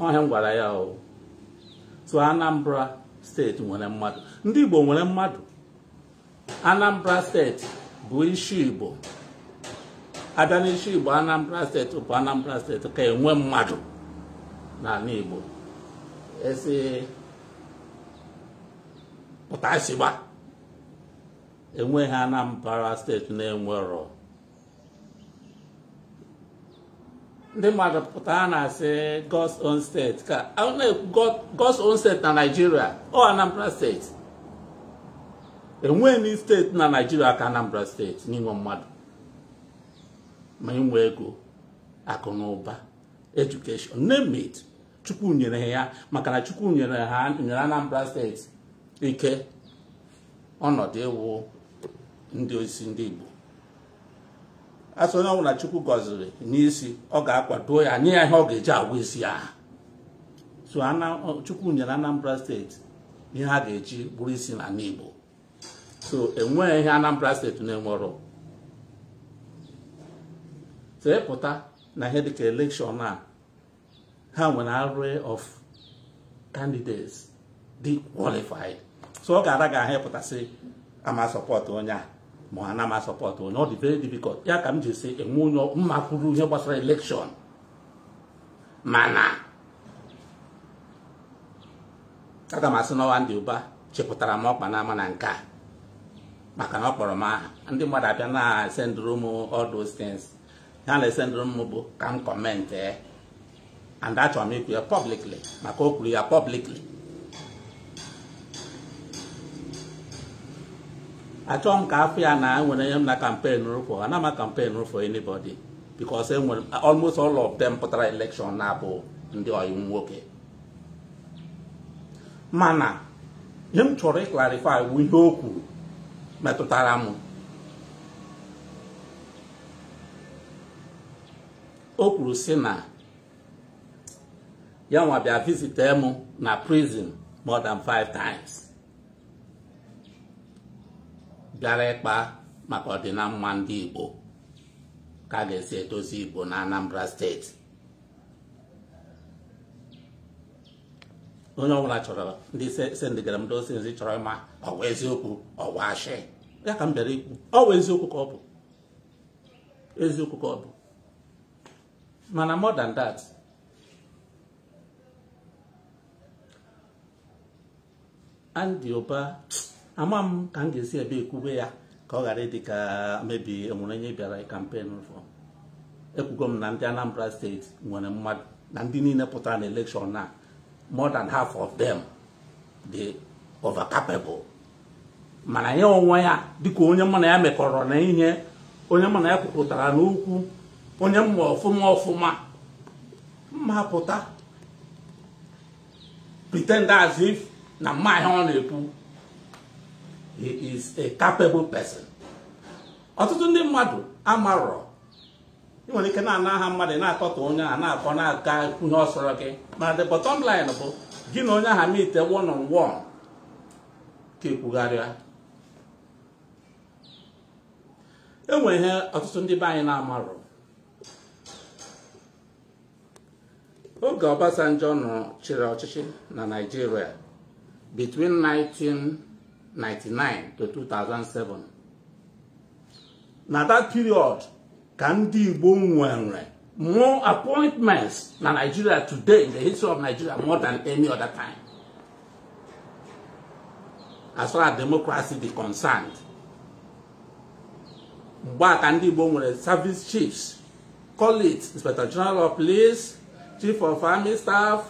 ọhịa m ya o oh, so Anambra steeti nwere mmadụ ndị Igbo nwere mmadụ Anambra steeti bụ isi Igbo abịa n'isi Igbo Anambra steeti bụ Anambra steeti ka enwe mmadụ n'ala Igbo esi pụtasịgba enweghị Anambra steeti na-enwerọ ndị mmadụ pụtara na-asị God's own state ka na-ekwu God's own state na Nigeria ọ Anambra steeti enweghị steeti na naijiria ka Anambra steeti n'inwe mmadụ ma inwe ego akụ na ụba edukeshọn Chukwu nyere ya maka na Chukwu nyere ha nyere Anambra steeti ike ọnọdụ ịwụ ndị osi ndị Igbo asị onye ọbụla chukwu gọziri n'isi ọ ga-akwado ya nye ya ihe ọ ga-eji agwa isi ya so chukwu nyere anambra steeti ihe a ga-eji bụrụ isi na n'igbo so enweghị ihe anambra steeti na-enwero tepụta na ihe dịka elekshọn a ha nwere arụ of candidates dị qualified so ọ ga-ara ga ahịpụtasị ama sọpọt onye a ma ha na m support onye ọ very difficult ya ka m ji si enwe onye mma kwuru ihe gbasara elekshọn mana aga m asị n'ọnwa ndị ụba chepụtara m ọkpa n'ama na nke a maka na ọ kpọrọ m aha ndị mmadụ abịa na-esendụrụ m all those things ha na m bụ ka m kọmentị eh, and achọrọ m ikwu ya publicly maka o kwuru ya publicly achọghị m ka afọ ya na enwere nye m na kampen rụfọ ana ama kampen rụfọ anybody because enwere almost all of them pụtara election na-abụ ndị ọyị nwoke mana ihe m chọrọ ịklarifai bụ ihe o kwuru metụtara m o kwuru si na ya nwa bịa visite m na prison more than five times bịara ịkpa maka mma ndị Igbo ka a ga-esi edozi Igbo na Anambra steeti onye ọbụla chọrọ ndị sendịgara m dozi nzi chọrọ ịma ọwa eziokwu ọwa ashị ya ka m bịara ikwu ọwa eziokwu ka ọ bụ eziokwu ka ọ bụ mana more than that Andy Oba ama m ka m ga-esi ebe ekwube ya ka ọ ghara ịdị ka mebi enwere onye bịara kampen e fọ ekwugo m na ndị Anambra steeti nwere mmadụ na ndị niile pụtara na elekshọn na more than half of them dị overcapable mana ya onwe ya dịka onye mụ ya mekọrọ na ihe onye mụ na ya kwupụtara n'okwu onye mma ọfụma ọfụma mma pụta pretend as if na mma ihe ọ na-ekwu he is a capable person ọtụtụ ndị mmadụ amarọ ị nwere ike na-ana aha mmadụ na-akọta onye a na-akọ na aga kwunye ọsọrọ gị mana the bottom line bụ gị na onye aha meet one on one ka ekwugharịa e nwere ihe ọtụtụ ndị be anyị na-amarọ oge Obasanjo nọ chịrị ọchịchị na Naịjirịa between 19 1999 to 2007 Now that period ka ndị Igbo nwere more appointments than Nigeria today in the history of Nigeria more than any other time as far as democracy is concerned mgbe a ka ndị service chiefs call it inspector general of police chief of army staff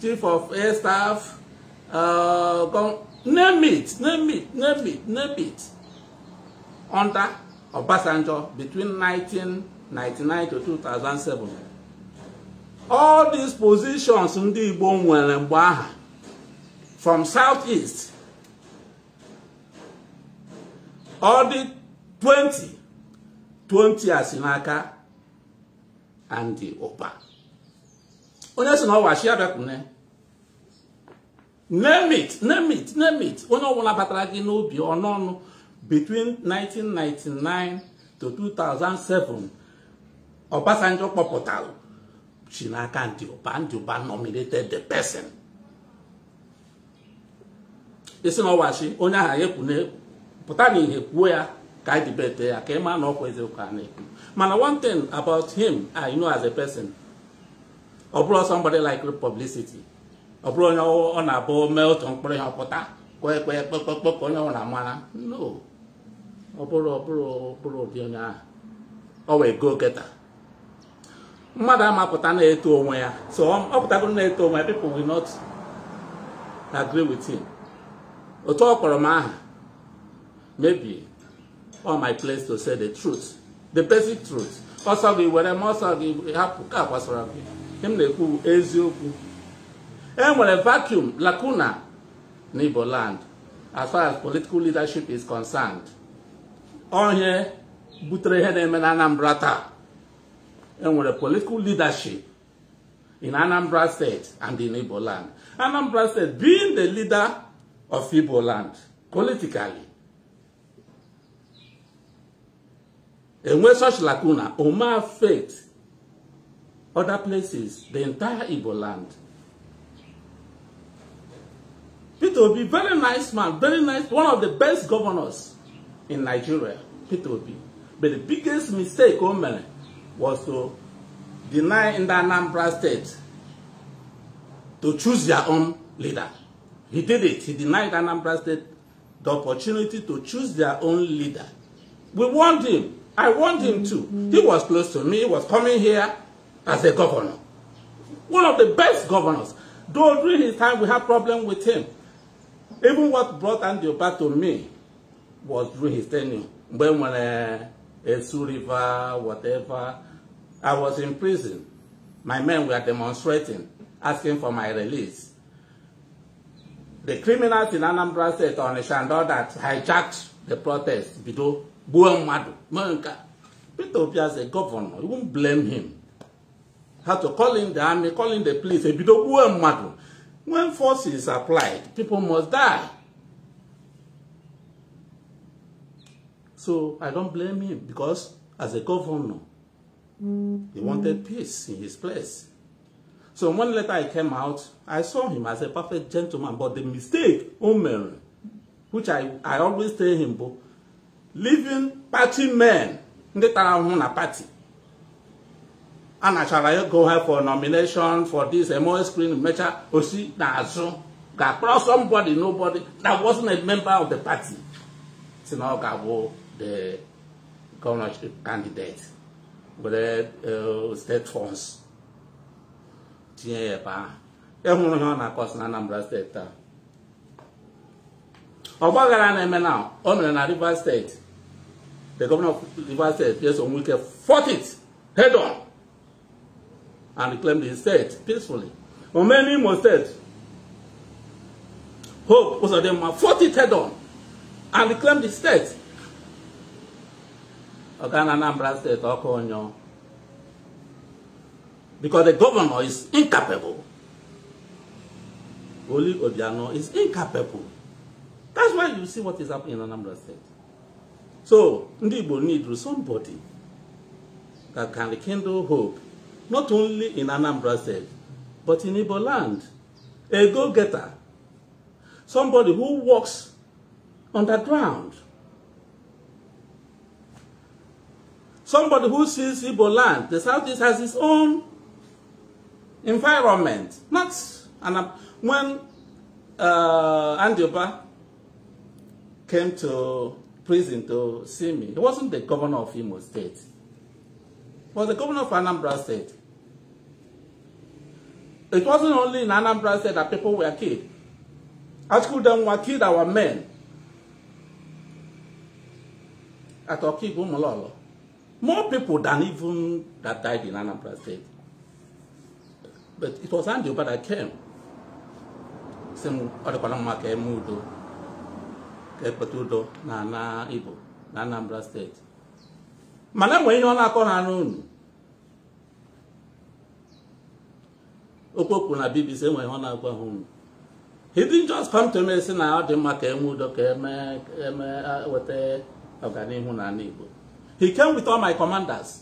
chief of air staff uh, name it, name it, name it, name it. Under Obasanjo between 1999 to 2007. All these positions ndị Igbo from southeast all the 20 20 asinaka and the Oba. Onye si na ọwa shi abịakwune name it name it name it onye ọbụla batara gị n'obi ọnụ ọnụ between 1999 to 2007 Obasanjo kpọpụtara si n'aka ndị ụba ndị ụba nominated the person isi na ọwachi onye ahụ ekwu na-ekwu pụta n'ihe kwuo ya ka anyị dibete ya ka ị maa na ọkwa eziokwu a na-ekwu mana one thing about him I ah, know as a person ọ bụrụ somebody like publicity ọ bụrụ onye ọ na-abụ mee otu mkpụrụ ya pụta kwe kwee kpekpekpe ka onye ọ na-amara no ọ bụrụ ọ bụrụ ọ bụrụ ụdị onye ahụ ọ wee go geta mmadụ amapụta na-eto onwe ya so ọ pụtagoro na-eto onwe ya people will not agree with him otu ọ kpọrọ m aha maybe all my place to say the truth the basic truth ọsọ gị were m ọsọ gị hapụ ka kwasara gị m na-ekwu eziokwu enwere eh, vacuum lacuna na Igbo land as far as political leadership is concerned onye butere ihe na-eme na Anambra taa enwere political leadership in Anambra State and in Igbo land Anambra State being the leader of Igbo land politically enwe such lacuna Oma faith other places the entire Igbo land Peter Obi, very nice man, very nice, one of the best governors in Nigeria, Peter Obi. But the biggest mistake o was to deny in the Anambra state to choose their own leader. He did it. He denied Anambra state the opportunity to choose their own leader. We warned him. I warned him too. He was close to me. He was coming here as a governor. One of the best governors. during his time we had problems with him. Even what brought Andrew back to me was through his tenure. When, when uh, Esu River, whatever, I was in prison. My men were demonstrating, asking for my release. The criminals in Anambra State on Shandor that hijacked the protest, Bido, Buemadu, Manka. Peter Obia is governor. You won't blame him. Had to call in the army, call in the police, Bido, Buemadu. When force is applied, people must die. So I don't blame him because as a governor, he wanted mm. peace in his place. So when later I came out, I saw him as a perfect gentleman, but the mistake, Omer, which I, I always tell him, living party men, ndị tara ahụhụ na party a nachara go her for nomination for this MOS screen Mecha Osi Nazo Gakpro somebody nobody that wasn't a member of the party Sinao Gabo the governorship candidate with uh, uh, state funds tinye ya ebe ahụ ịhụrụ ihe ọ na-akọsi na Anambra steeti taa ọgbaghara na-eme na ọ nọrọ na Rivers steeti the governor of Rivers steeti Pierce Onwuike fought th head on and reclaim the state peacefully. many more states, Hope was Uzodinma fought it head on and reclaim the state. Oga na Anambra State, Okonyo. Because the governor is incapable. Oli Obiano is incapable. That's why you see what is happening in Anambra State. So, Ndibo need somebody that can rekindle hope not only in Anambra State, but in Igbo land. A go-getter. Somebody who works underground. Somebody who sees Igbo land. The Southeast has its own environment. Not when uh, Andioba came to prison to see me, he wasn't the governor of Imo State. He was the governor of Anambra State. It wasn't only in Anambra State that people were killed. Article them were killed our men at Okibu Mololo. More people than even that died in Anambra State. But it was Andy but I came. Same Odekolama came Udo. Kepetudo na na Anambra State. Mana enwe ihe ọ na-akọ ha n'unu okwu kwuru na bbc enwere ọ na-agwa ha unu he didn't just come to me si na ọ dị mma ka eme udo ka eme e weta ọganihu na ala igbo he came with all my commanders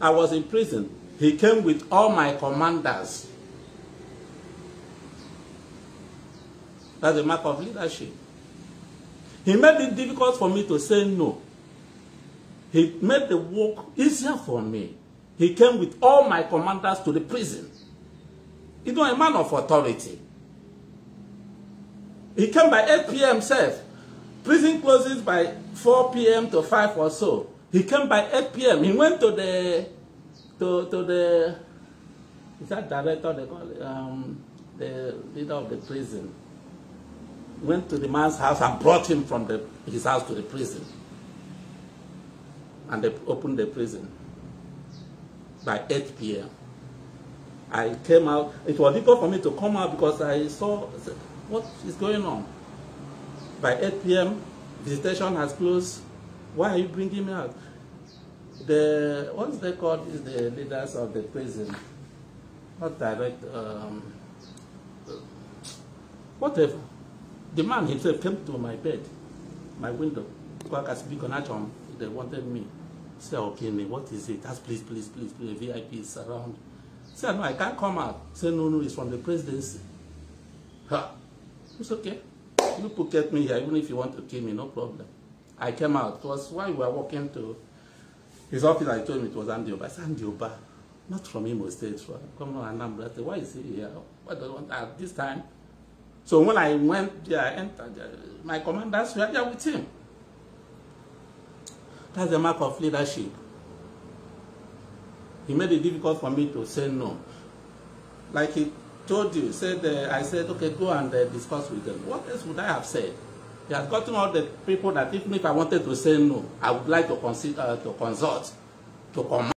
i was in prison he came with all my commanders that's a mark of leadership he made it difficult for me to say no he made the work easier for me He came with all my commanders to the prison. You know, a man of authority. He came by 8 p.m. himself. Prison closes by 4 p.m. to 5 or so. He came by 8 p.m. He went to the, to, to the, is that director they call it, um, the leader of the prison. Went to the man's house and brought him from the, his house to the prison. And they opened the prison by 8 p.m. I came out. It was difficult for me to come out because I saw what is going on. By 8 p.m., visitation has closed. Why are you bringing me out? The what's they called is the leaders of the prison, not direct. Um, whatever. The man himself came to my bed, my window. Because I speak on they wanted me. Say, okay, me. what is it? Ask, please, please, please, please, VIP is around. Say, no, I can't come out. Say, no, no, it's from the presidency. Ha. It's okay. You could get me here, even if you want to kill me, no problem. I came out. It was while we were walking to his office, I told him it was Andioba. I said, Andioba, not from him or State, from on, Anambra. I said, why is he here? What do I want at this time? So when I went there, I entered, uh, my commanders were there with him. That's the mark of leadership. He made it difficult for me to say no. Like he told you, said uh, I said, okay, go and uh, discuss with them. What else would I have said? He has gotten all the people that even if I wanted to say no, I would like to, consider, uh, to consult, to command.